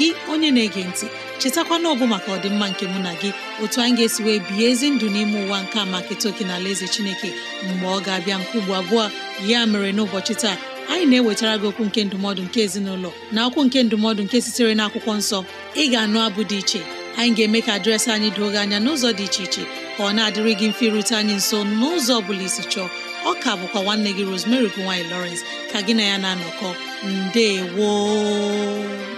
gị onye na-ege ntị chetakwana ọbụ maka ọdịmma nke mụ na gị otu anyị ga-esi wee bihe ezi ndụ n'ime ụwa nke a maka etoke na ala eze chineke mgbe ọ ga-abịa nke ugbo abụọ ya mere n'ụbọchị taa anyị na-ewetara gị okwu nke ndụmọdụ nke ezinụlọ na akwụkwọ nke ndụmọdụ nke sitere na akwụkwọ nsọ ị ga-anụ abụ dị iche anyị ga-eme ka dịrasị anyị doo gị anya n'ụzọ dị iche iche ka ọ na-adịrị gị mfe irute anyị nso n'ụzọ ọ bụla isi chọọ ọ ka bụkwa nwanne gị Rosemary gowany Lawrence ka gị na ya na-anọkọ woo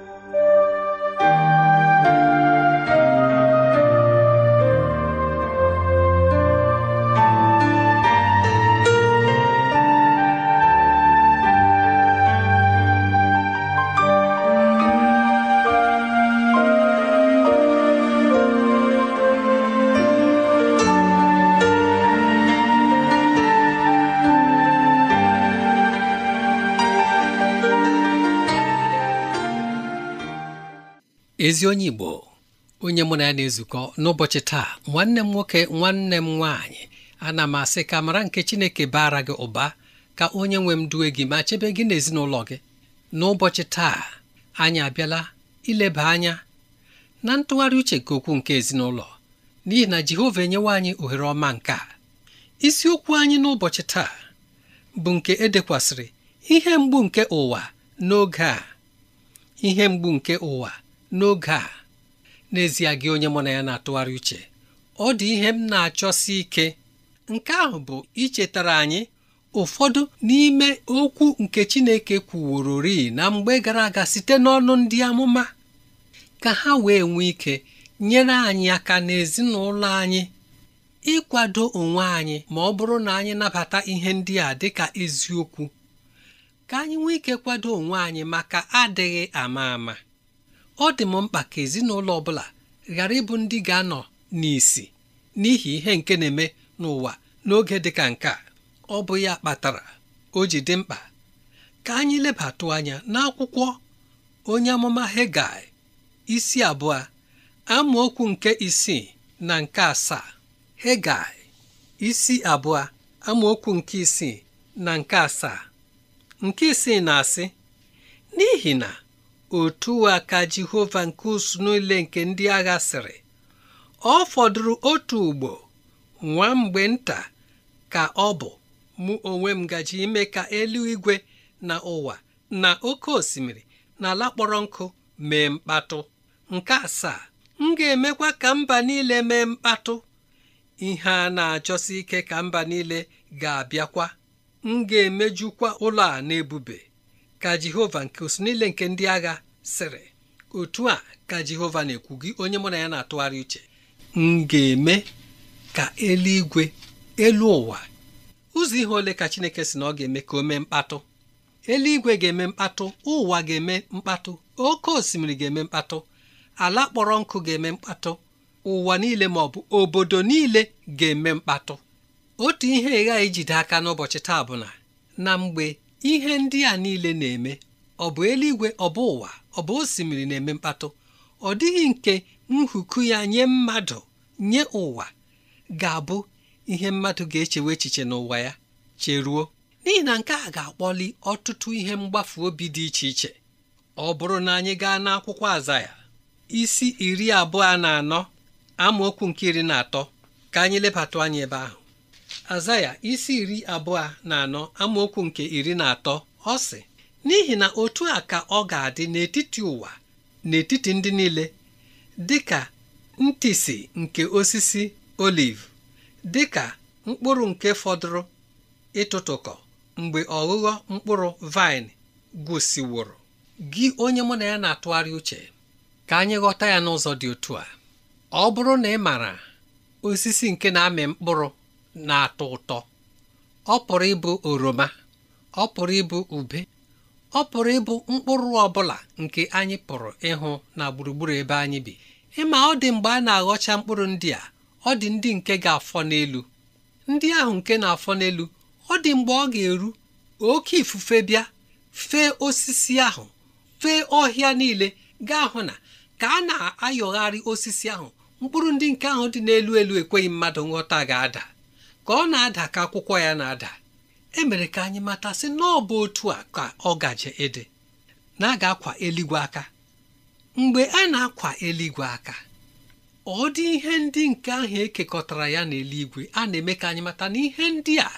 ezi onye Igbo onye mụ na ya na-ezukọ n'ụbọchị taa nwanne m nwoke nwanne m nwaanyị ana m asị ka mara nke Chineke baara gị ụba ka onye nwe m duwe gị ma chebe gị ezinụlọ gị n'ụbọchị taa anyị abịala ileba anya na ntụgharị uche nke okwu nke ezinụlọ n'ihi na Jehova enyewa anyị ohere ọma nke a isiokwu anyị n'ụbọchị taa bụ nke edekwasịrị ihe mgbu nke ụwa n'oge a ihe mgbu nke ụwa n'oge a n'ezie gị onye mụ na ya na-atụgharị uche ọ dị ihe m na-achọsi ike nke ahụ bụ ichetara anyị ụfọdụ n'ime okwu nke Chineke kwuworori na mgbe gara aga site n'ọnụ ndị amụma ka ha wee nwee ike nyere anyị aka n'ezinụlọ anyị ịkwado onwe anyị ma ọ bụrụ na anyị nabata ihe ndị a dị ka eziokwu ka anyị nwee ike kwado onwe anyị maka adịghị ama ama ọ dị m mkpa ka ezinụlọ ọ bụla ghara ịbụ ndị ga-anọ n'isi n'ihi ihe nke na-eme n'ụwa n'oge dị ka nke a ọ bụ ya kpatara o ji dị mkpa ka anyị lebatụ anya n'akwụkwọ onye amụma Hegai isi abụọ amaokwu nke isii na nke asaa Hegai isi abụọ amaokwu nke isii na nke asaa nke isii na-asị n'ihi na otu a ka Jehova nke usuu niile nke ndị agha sịrị ọ fọdụrụ otu ugbo nwa mgbe nta ka ọ bụ mụ onwe m gaji ime ka eluigwe na ụwa na oke osimiri na ala kpọrọ nkụ mee mkpatụ nke asaa m ga-emekwa ka mba niile mee mkpatụ ihe a na-achọsi ike ka mba niile ga-abịakwa m ga-emejukwa ụlọ a na-ebube. ka jehova nke usu niile nke ndị agha sịrị otu a ka jehova na-ekwu gị onye mụ na ya na-atụgharị uche m ga-eme ka eluigwe elu ụwa ụzọ ihe ole ka chineke si na ọ ga-eme ka o mee mkpatụ eluigwe ga-eme mkpatụ ụwa ga-eme mkpatụ oke osimiri ga-eme mkpatụ ala kpọrọ nkụ ga-eme mkpatụ ụwa niile ma ọ bụ obodo niile ga-eme mkpatụ otu ihe ịghaghị ijide aka n'ụbọchị taa bụ na na mgbe ihe ndị a niile na-eme ọ bụ eluigwe ọ bụ ụwa ọ bụ osimiri na-eme mkpatụ ọ dịghị nke nhuku ya nye mmadụ nye ụwa ga-abụ ihe mmadụ ga-echewe echiche n'ụwa ya cheruo n'ihi na nke a ga-akpọli ọtụtụ ihe mgbafu obi dị iche iche ọ bụrụ na anyị gaa n'akwụkwọ azaya isi iri abụọ na anọ amaokwu nke iri na atọ ka anyị lebata anya ebe ahụ azaya isi iri abụọ na anọ amaokwu nke iri na atọ ọ sị n'ihi na otu a ka ọ ga-adị n'etiti ụwa n'etiti ndị niile dịka ntịsị nke osisi oliv ka mkpụrụ nke fọdụrụ ịtụtụkọ mgbe ọghụghọ mkpụrụ vaịn gwụsịworo gị onye mụ na ya na-atụgharị uche ka anyị ghọta ya n'ụzọ dị otu a ọ bụrụ na ị maara osisi nke na-amị mkpụrụ na-atọ ụtọ ọ pụrụ ịbụ oroma ọ pụrụ ịbụ ube ọ pụrụ ịbụ mkpụrụ ọ bụla nke anyị pụrụ ịhụ na gburugburu ebe anyị bi ịma ọ dị mgbe a na-aghọcha mkpụrụ ndị a ọ dị ndị nke ga-afọ n'elu ndị ahụ nke na-afọ n'elu ọ dị mgbe ọ ga-eru oke ifufe bịa fee osisi ahụ fee ọhịa niile gaa hụ na ka a na-ayọgharị osisi ahụ mkpụrụ ndị nke ahụ dị n'elu elu ekweghị mmadụ nghọta ga-ada ka ọ na-ada ka akwụkwọ ya na-ada emere ka anyị mata n'ọbụ otu a ka ọ gaje ịdị na-aga akwa eluigwe aka mgbe a na-akwa eluigwe aka ọ dị ihe ndị nke ahụ ekekọtara ya na-eluigwe a na-eme ka anyị mata na ihe ndị a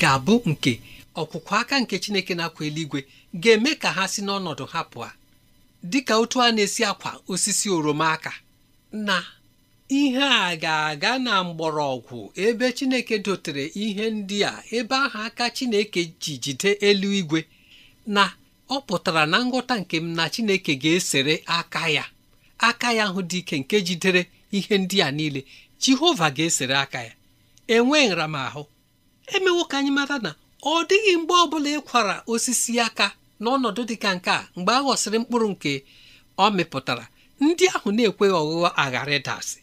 ga-abụ nke ọkwụkwọ aka nke Chineke na-akwa eluigwe ga-eme ka ha si n'ọnọdụ ha pụọ dịka otu a na-esi akwa osisi oroma aka na ihe a ga-aga na mgbọrọgwụ ebe Chineke dotere ihe ndị a ebe ahụ aka Chineke ji jide eluigwe na ọ pụtara na nghọta nke m na Chineke ga-esere aka ya aka ya ahụ dị ike nke jidere ihe ndị a niile Jehova ga-esere aka ya enwe nramahụ emewo ka anyị mata na ọ dịghị mgbe ọbụla ịkwara osisi aka n'ọnọdụ dị ka nke a mgbe a ghọsịrị mkpụrụ nke ọ mịpụtara ndị ahụ na-ekweghị ọghụghọ aghara ịdasị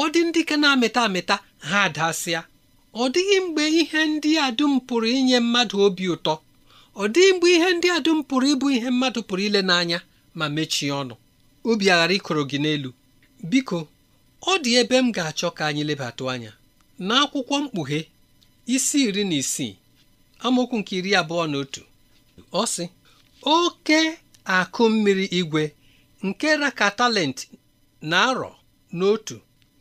ọ dị ndị ka na-amịta amịta ha adasịa ọ dịghị mgbe ihe ndị a dum pụrụ inye mmadụ obi ụtọ ọ dịghị mgbe ihe ndị a dum pụrụ ịbụ ihe mmadụ pụrụ ile n'anya ma mechie ọnụ obi aghara ịkọrọ gị n'elu biko ọ dị ebe m ga-achọ ka anyị lebatụ anya n'akwụkwọ mkpughe isi iri na isii amaokwu nke iri abụọ na otu ọ sị oke akụ mmiri igwe nke raka talent na arọ n'otu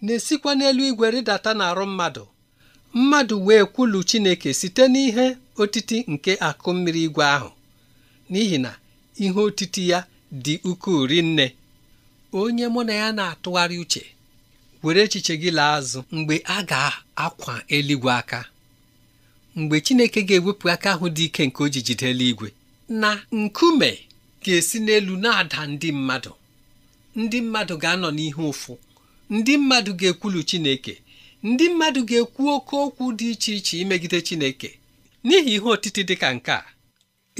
na-esikwa n'elu igwe rịdata arụ mmadụ mmadụ wee kwulu Chineke site n'ihe otiti nke akụ mmiri igwe ahụ n'ihi na ihe otiti ya dị ukwuu rinne onye mụ na ya na-atụgharị uche were echiche gị laa azụ mgbe a ga-akwa eluigwe aka mgbe Chineke ga-ewepụ aka ahụ dị ike nke o eluigwe na nkume ga-esi n'elu na-ada ndị mmadụ ndị mmadụ ga-anọ n'ihe ụfụ ndị mmadụ ga-ekwulu Chineke ndị mmadụ ga-ekwu oke okwu dị iche iche imegide Chineke n'ihi ihe otiti dị ka nke a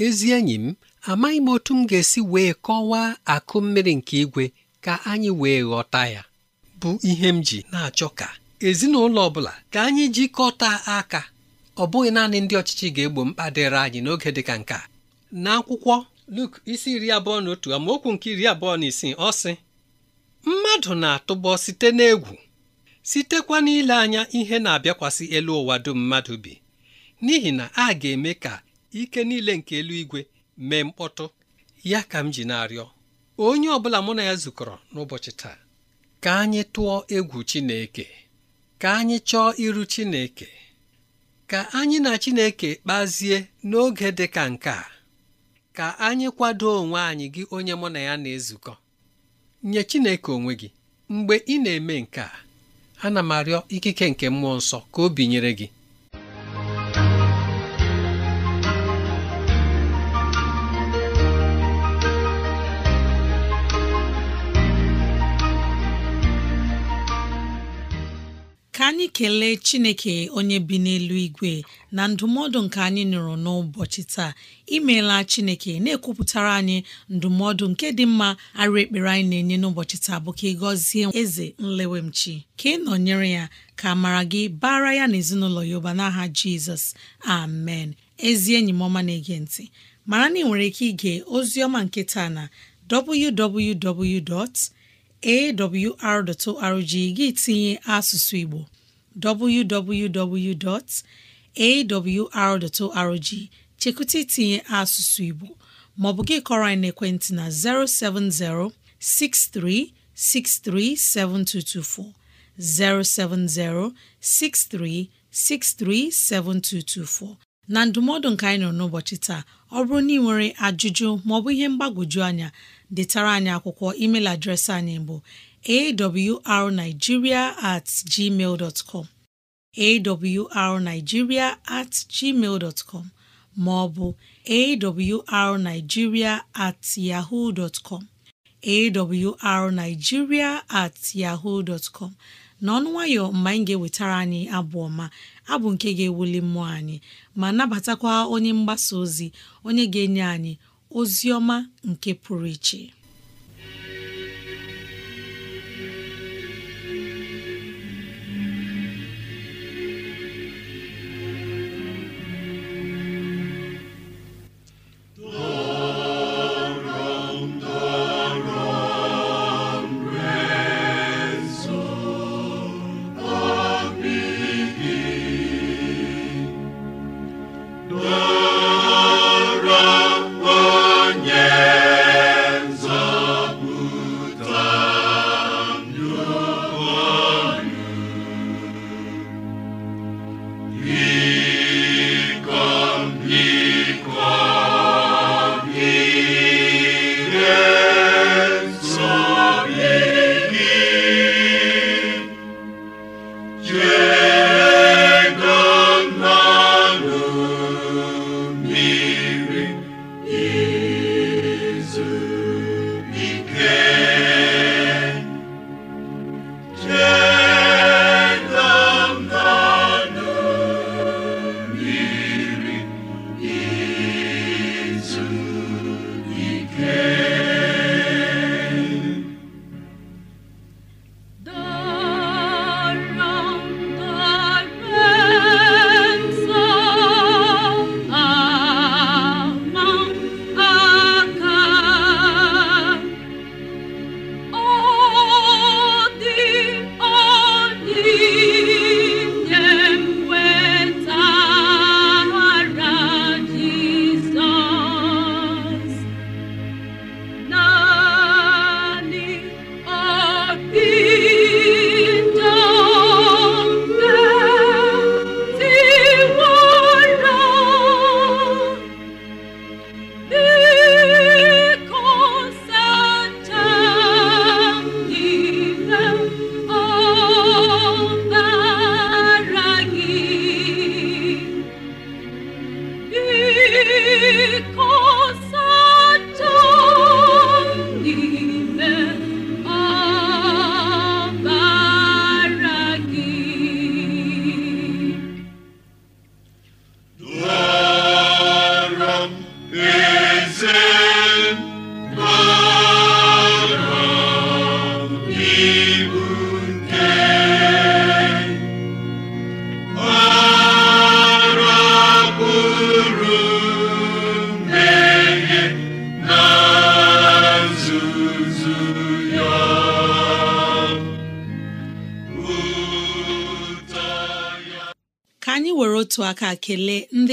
ezi enyi m amaghị m otu m ga-esi wee kọwaa akụ mmiri nke igwe ka anyị wee ghọta ya bụ ihe m ji na-achọ ka ezinụlọ ọ bụla ka anyị jikọta aka ọ bụghị naanị ndị ọchịchị ga-egbo mkpa dịrị anyị n'oge dị ka nke a. n'akwụkwọ Luk isi iri abụọ na otu amaokwu nke iri abụọ na isii ọ sị mmadụ na-atụbọ site n'egwu sitekwa n'ile anya ihe na-abịakwasị elu ụwa dum mmadụ bi n'ihi na a ga-eme ka ike niile nke eluigwe mee mkpọtụ ya ka m ji na-arịọ onye ọbụla mụ na ya zukọrọ n'ụbọchị taa ka anyị tụọ egwu Chineke ka anyị chọọ iru Chineke ka anyị na Chineke kpazie n'oge dị ka nke a ka anyị kwado onwe anyị gị onye mụ na ya na-ezukọ nye Chineke onwe gị mgbe ị na-eme nke a ana m arịọ ikike nke mmụọ nsọ ka o binyere gị anyị kelee chineke onye bi n'elu igwe na ndụmọdụ nke anyị nụrụ n'ụbọchị taa imeela chineke na-ekwupụtara anyị ndụmọdụ nke dị mma arụ ekpere anyị na-enye n'ụbọchị taa bụ ka ị gọzie eze nlewemchi ka ị nọnyere ya ka mara gị bara ya na ezinụlọ ya ụba n'aha jizọs amen ezi enyi m ọma na-ege ntị mara na ị nwere ike ige ozi ọma nke taa na www awr.org gị tinye asụsụ Igbo www.awr.org chekwụta itinye asụsụ Igbo maọbụ gị kọrọ anyị n'ekwentị na 070 6363 7224 070 6363 7224 na ndụmọdụ nke anyị nọ n'ụbọchị taa ọ bụrụ na ị nwere ajụjụ maọbụ ihe mgbagwoju anya detara anyị akwụkwọ email adreesị anyị bụ awrnigeria at gmail dot com awrnigeria at gmail dot com maọbụ awrnigeria at yahoo dot com awrnigeria at yahoo dot com n'ọnụ nwayọ mgbe anyị ga-ewetara anyị abụ ọma abụ nke ga-ewuli mmụọ anyị ma nabatakwa onye mgbasa ozi onye ga-enye anyị ozi ọma nke pụrụ iche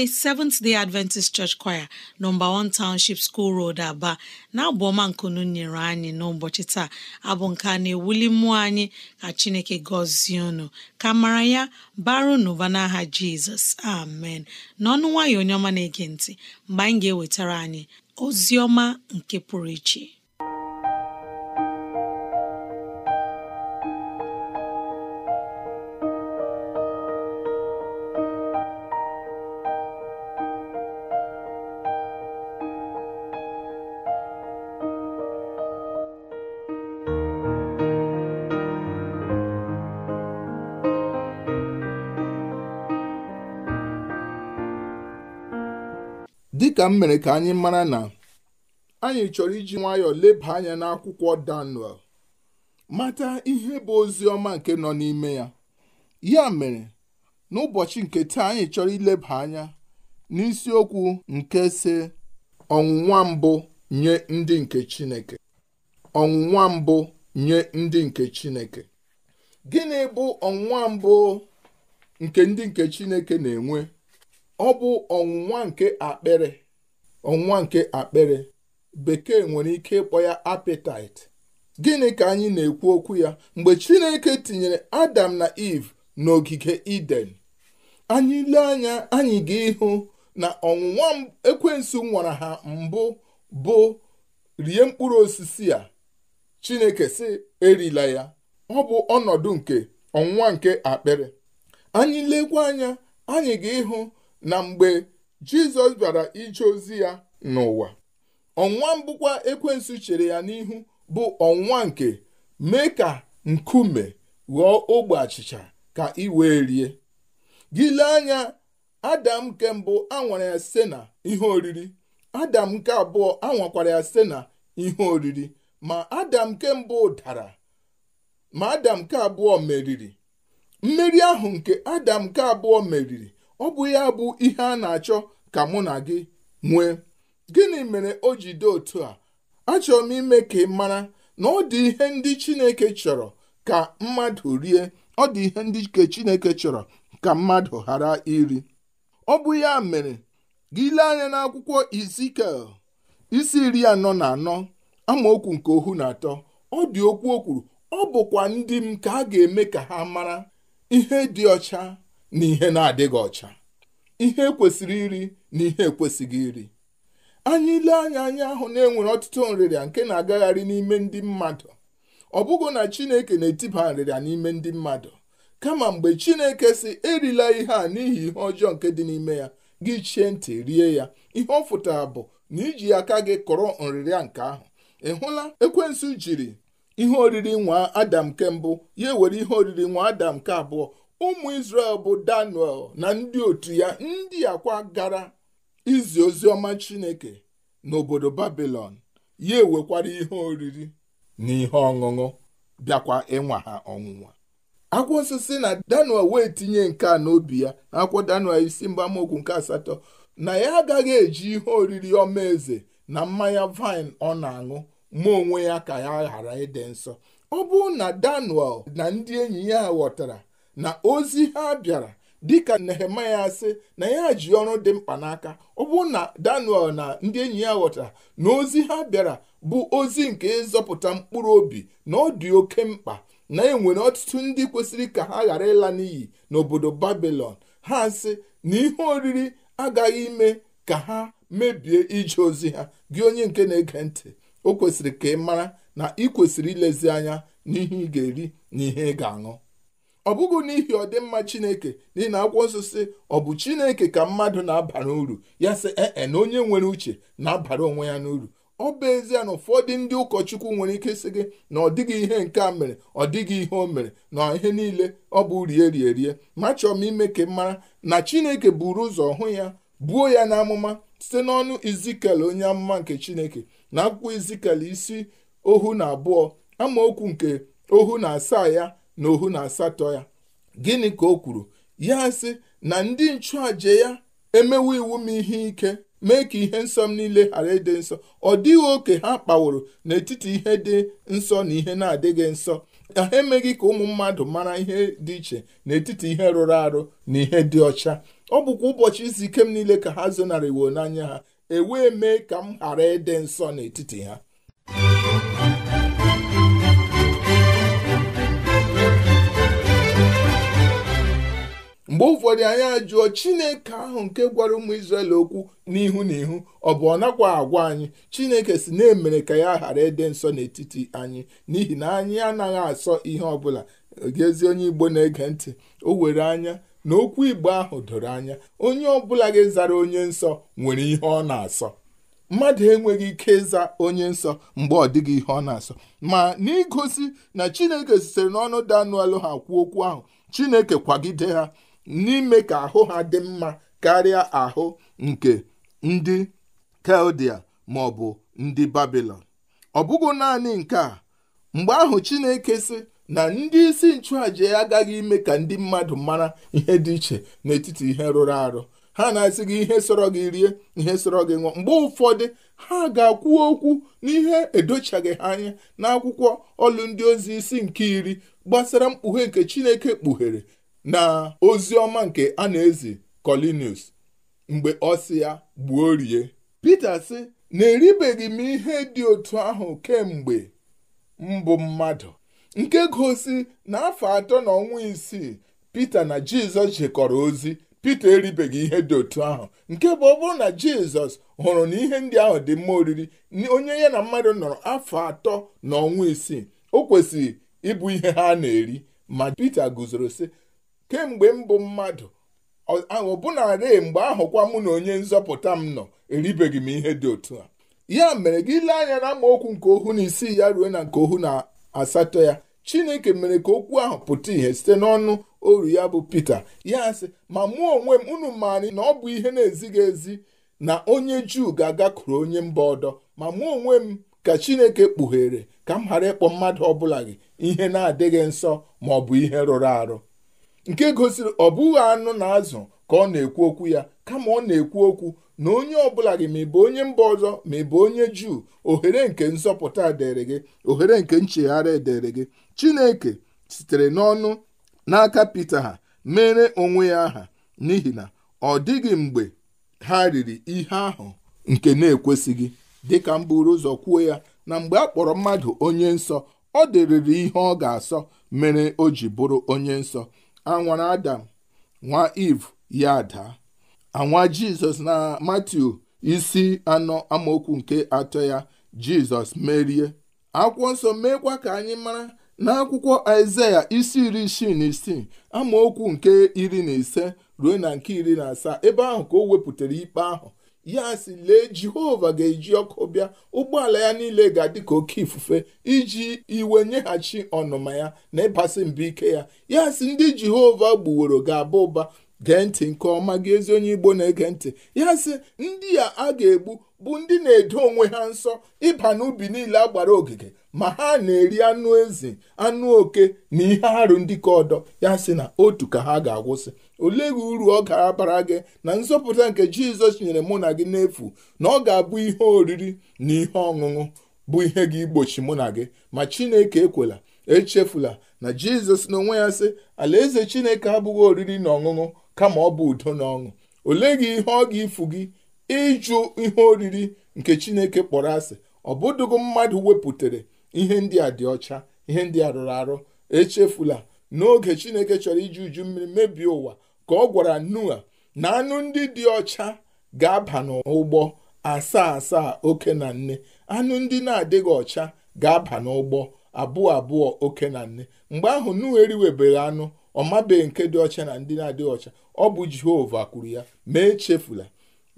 ndị Seventh Day Adventist Church Choir nọmba 1 Township School Road Aba na-abụ ọma nkunu nyere anyị n'ụbọchị taa abụ nke a na-ewuli mmụọ anyị ka Chineke gọzie unu ka mara ya baru n'ụba n'aha Jizọs amen n'ọnụ nwayọ onye ọma na-ege ntị mgbe anyị ga-ewetara anyị ozi ọma nke pụrụ iche dịka mere ka anyị mara na anyị chọrọ iji nwayọọ leba anya n'akwụkwọ Daniel mata ihe bụ ozi ọma nke nọ n'ime ya ya mere n'ụbọchị nke taa anyị chọrọ ileba anya n'isiokwu nke si ọnwụnwa mbụ nye ndị nke Chineke ọnwụnwa mbụ nye ndị nke Chineke gịnị bụ ọnwụnwa mbụ nke ndị nke Chineke na-enwe ọ bụ ọnwụnwa nke akpịrị ọnwa nke akpịrị bekee nwere ike ịkpọ ya apịtaịtị gịnị ka anyị na-ekwu okwu ya mgbe chineke tinyere adam na eve n'ogige eden anyị lee anya anyị ga-ịhụ na ọnwụnwa ekwensu nwara ha mbụ bụ rie mkpụrụ osisi a chineke si erila ya ọ bụ ọnọdụ nke ọnwụnwa nke akpịrị anyị lekwa anya anyị ga-ịhụ na mgbe jizọs bara ije ozi ya n'ụwa ọnwa mbụkwa ekwensu chere ya n'ihu bụ ọnwa nke mee ka nkume ghọọ ogbe achịcha ka ị wee rie gile anya adam nke mbụ anwara ya site na ihe oriri adam nke abụọ anwakwara ya site na ihe oriri ma adam nke mbụ dara ma adam nke abụọ meriri mmeri ahụ nke adam nke abụọ meriri ọ bụ ya bụ ihe a na-achọ ka mụ na gị nwee gịnị mere o ji dị otu a achọrọ m ime ka ị mara na ọ dị ihe ndị Chineke chọrọ ka mmadụ rie ọ dị ihe ndị ke Chineke chọrọ ka mmadụ ghara iri ọ bụ ya mere gị lee anya n'akwụkwọ Izikiel isi iri anọ na anọ amaokwu nke ohu na atọ ọ dị okwu o kwuru ọ bụkwa ndị m ka a ga-eme ka ha mara ihe dị ọcha na ihe na-adịghị ọcha ihe kwesịrị iri na ihe ekwesịghị iri anyị ile anya anyị ahụ na-enwere ọtụtụ nrịrịa nke na-agagharị n'ime ndị mmadụ ọ bụghị na Chineke na-etiba nrịrịa n'ime ndị mmadụ kama mgbe Chineke si erila ihe a n'ihi ihe ọjọọ nke dị n'ime ya gị chie ntị rie ya ihe ọ fụtara bụ na iji aka gị kọrọ nrịrịa nke ahụ ị hụla ekwensu jiri ihe oriri nwa adam nke mbụ ya ewere ihe oriri nwa adam nke abụọ ụmụ Israel bụ Daniel na ndị otu ya ndị akwa gara izi ozi ọma Chineke n'obodo Babilọn ya ewekwara ihe oriri na ihe ọṅụṅụ bịakwa ịnwa ha ọnwụnwa akwụkwọ osisi na Daniel wee tinye nke a n'obi ya na akwụkwọ Daniel isi mgbamokwu nke asatọ na ya agaghị eji ihe oriri ọma eze na mmanya vaịn ọ na-aṅụ ma onwe ya ka ya ghara ịdị nsọ ọ bụrụ na Daniel na ndị enyi ya ghọtara na ozi ha bịara dịka nehemaya sị na ya ji ọrụ dị mkpa n'aka ọ bụ na daniel na ndị enyi ya ghọtara na ozi ha bịara bụ ozi nke ịzọpụta mkpụrụ obi na ọ dị oke mkpa na enwere ọtụtụ ndị kwesịrị ka ha ghara ịla n'iyi n'obodo babilọn ha sị na ihe oriri agaghị ime ka ha mebie ije ozi ha gị onye nke na-ege ntị o kwesịrị ka ị mara na ị kwesịrị ilezi anya n'ihe ị ga-eri na ihe ị ga-aṅụ ọ bụghị n'ihi ọdịmma chineke n'ihi na akwụkwọ nsọ si ọ bụ chineke ka mmadụ na-abara uru ya sị ee e, na onye nwere uche na-abara onwe ya n'uru ọ bụ ezie na ụfọdụ ndị ụkọchukwu nwere ike sị gị na ọ dịghị ihe nke a mere ọ dịghị ihe o mere na ihe niile ọ bụ e rie rie rie ma chọọ m ime ka mara na chineke buru ụzọ hụ ya buo ya n'amụma site n'ọnụ izikel onye amụma nke chineke na akwụkwọ izikel isi ohu na abụọ amaokwu nke ohu na asaa ya na ohu na asatọ ya gịnị ka o kwuru ya sị na ndị nchụàja ya emewo iwu m ihe ike mee ka ihe nsọ m niile ghara ịdị nsọ ọ dịghị oke ha kpaworo n'etiti ihe dị nsọ na ihe na-adịghị nsọ ha emeghị ka ụmụ mmadụ mara ihe dị iche n'etiti ihe rụrụ arụ na ihe dị ọcha ọ bụkwa ụbọchị izu ike m niile ka ha zonarịwo n'anya ha ewee mee ka m ghara ịdị nsọ n'etiti ha mgbe ụfọdụ anyị ajụọ chineke ahụ nke gwara ụmụ israel okwu n'ihu na ihu ọ bụ ọ nakwa agwa anyị chineke si na-emere ka ya ghara ịdị nsọ n'etiti anyị n'ihi na anyị anaghị asọ ihe ọbụla gezi onye igbo na-ege ntị o were anya na okwu igbo ahụ doro anya onye ọbụla gị zara onye nsọ nwere ihe ọ na-asọ mmadụ enweghị ike ịza onye nsọ mgbe ọ dịghị ihe ọ na-asọ ma n'igosi na chineke sitere n'ọnụ Daniel ha kwuo okwu ahụ chineke kwagide ha n'ime ka ahụ ha dị mma karịa ahụ nke ndị Keldia ma ọ bụ ndị Babilọn ọ bụghị naanị nke a mgbe ahụ Chineke sị na ndị isi nchụàja agaghị ime ka ndị mmadụ mara ihe dị iche n'etiti ihe rụrụ arụ ha na-asị gị ihe sọrọ gị rie ihe sọrọ gị ṅụọ mgbe ụfọdụ ha ga-akwu okwu n'ihe edochaghị ha anya n'akwụkwọ ọlụ ndị ozi isi nke iri gbasara mkpughe nke Chineke kpughere na ozi ọma nke a na-ezi Kọlinius mgbe ọ ya gbuo rie Pita sị na eribeghị m ihe dị otu ahụ kemgbe mbụ mmadụ nke gosi na afọ atọ na ọnwa isii Pita na Jizọs jikọrọ ozi Pita eribeghị ihe dị otu ahụ nke bụ ọ bụrụ na Jizọs hụrụ na ihe ndị ahụ dị mma oriri onye ya na mmadụ nọrọ afọ atọ na ọnwa isii o kwesịrị ịbụ ihe ha na-eri ma Pita guzoro sị kemgbe m bụ mmadụ ahụ ọbụnarị mgbe ahụkwa mụ na onye nzọpụta m nọ eribeghị m ihe dị otu a ya mere gị lee anya na okwu nke ohu na isii ya ruo na nke ohu na asatọ ya chineke mere ka okwu ahụ pụta ìhè site n'ọnụ oru ya bụ Pita ya sị ma mụ onwe m unu maara na ọ bụ ihe na-ezighị ezi na onye juu ga-agakwuru onye mba ọdọ ma mụ onwe m ka chineke kpughere ka m ghara ịkpọ mmadụ ọ bụla gị ihe na-adịghị nsọ ma ọ bụ ihe rụrụ arụ nke gosiri ọ bụghị anụ na azụ ka ọ na-ekwu okwu ya kama ọ na-ekwu okwu na onye ọbụla gị ma bụ onye mba ọzọ ma bụ onye juu ohere nke nsọpụta dịrị gị ohere nke nchegharị dịrị gị chineke sitere n'ọnụ n'aka pita ha mere onwe ya aha n'ihi na ọ dịghị mgbe ha riri ihe ahụ nke na-ekwesịghị dịka m buru ụzọ kwuo ya na mgbe a kpọrọ mmadụ onye nsọ ọ dịrịrị ihe ọ ga-asọ mere o ji bụrụ onye nsọ anwara adam nwa iv ya ada anwa jizọs na matiu isi anọ amaokwu nke atọ ya jizọs merie akwụkwọ nsọ meekwa ka anyị mara n'akwụkwọ aịzaya isi iri isii na isii amaokwu nke iri na ise ruo na nke iri na asaa ebe ahụ ka o wepụtara ikpe ahụ ya si lee jehova ga-eji ọkụ bịa ụgbọala ya niile ga-adị ka oke ifufe iji iwe nyeghachi ọnụma ya na ịbasị mbụ ike ya ya si ndị jehova gbuworo ga-aba ụba gee ntị nke ọma gị ezi onye igbo na-ege ntị ya sị ndị a a ga-egbu bụ ndị na-edo onwe ha nsọ ịba n'ubi niile a gbara ogige ma ha na-eri anụ ezi anụ oke na ihe arụ ndị ka ọdọ ya sị na otu ka ha ga-agwụsị olee gị uru ọ ga-abara gị na nzọpụta nke jizọs nyere mụ na gị n'efu na ọ ga-abụ ihe oriri na ihe ọṅụṅụ bụ ihe gị igbochi mụ na gị ma chineke ekwela echefula na jizọs n'onwe ya sị alaeze chineke abụghị oriri na ọṅụṅụ kama ọ bụ udo na ọṅụ olee gị ihe ọ ga-ifu gị ịjụ ihe oriri nke chineke kpọrọ asị ọ bụdụgo mmadụ wepụtara ihe ndị a dị ọcha ihe ndị a rụrụ arụ echefula n'oge chineke chọrọ iji uju mmiri mebie ụwa ka ọ gwara Noa na anụ ndị dị ọcha ga-aba n'ụgbọ asaa asaa oke na nne anụ ndị na-adịghị ọcha ga-aba n'ụgbọ abụọ abụọ oke na nne mgbe ahụ Noa eriwebeghị anụ ọ mabeghị nke dị ọcha na ndị na-adịghị ọcha ọ bụ Jehova kwuru ya ma echefula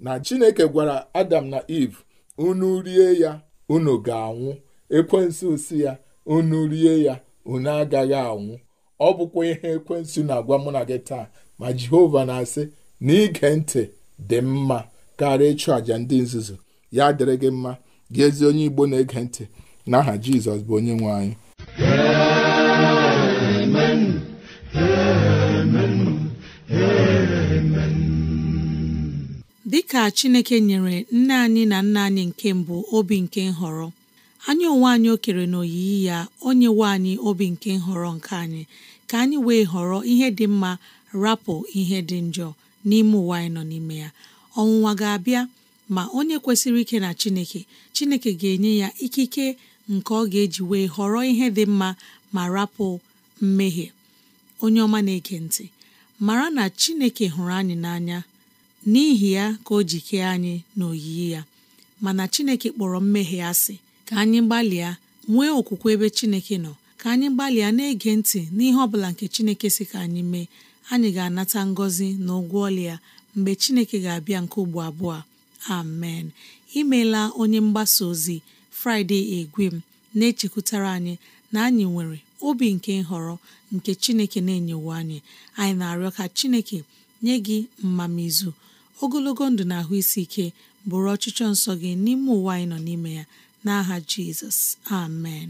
na Chineke gwara Adam na Eve unu rie ya unu ga-anwụ ekwensu si ya unu rie ya unu agaghị anwụ ọ bụkwa ihe ekwensu na-agwa mụ na gị taa ma jehova na-asị na ige ntị dị mma karịa ịchụ àjà ndị nzuzu ya dịrị gị mma gị ezi onye igbo na-ege ntị n'aha jizọs bụ onye nwe anyị amen amen amen dịka chineke nyere nne anyị na nna anyị nke mbụ obi nke nhọrọ anyị onwe anyị o kere n'oyiyi ya o nyewe anyị obi nke nhọrọ nke anyị ka anyị wee họrọ ihe dị mma rapụ ihe dị njọ n'ime ụwa anyị nọ n'ime ya ọnwụnwa ga-abịa ma onye kwesịrị ike na chineke chineke ga-enye ya ikike nke ọ ga-eji wee họrọ ihe dị mma ma rapụ mmehie onye ọma na-ege ntị mara na chineke hụrụ anyị n'anya n'ihi ya ka o ji kee anyị na oyiyi ya mana chineke kpọrọ mmehie asị ka anyị gbalịa nwee okwukwe ebe chineke nọ ka anyị gbalịa na-ege ntị n'ihe ọ bụla nke chineke si ka anyị mee anyị ga-anata ngọzi na ụgwọ ya mgbe Chineke ga-abịa nke ugbo abụọ amen imeela onye mgbasa ozi Fraịde Egwem na-echekwutara anyị na anyị nwere obi nke nhọrọ nke Chineke na-enyewo anyị anyị na-arịọ ka Chineke nye gị mmamizu ogologo ndụ na ahụ isi ike bụrụ ọchịchọ nsọ gị n'ime ụwa anyị nọ n'ime ya n'aha Jizọs amen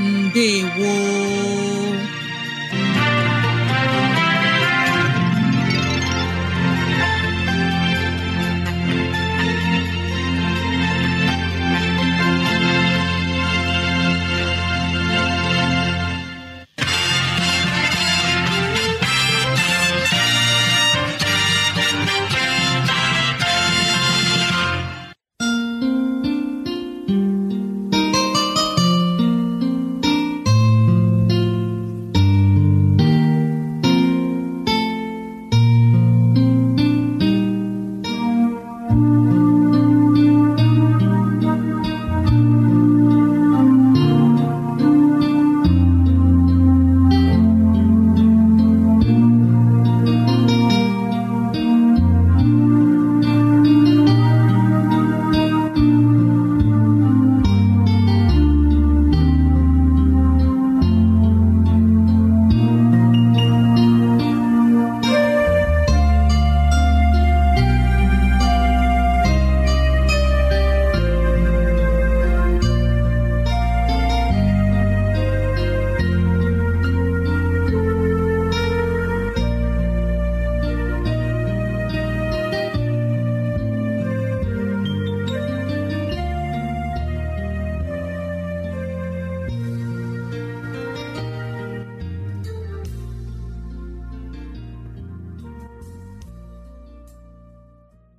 ndewo